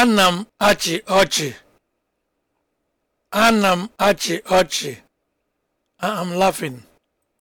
Ana m achị ọchị. Ana m achị ọchị. I am laughing.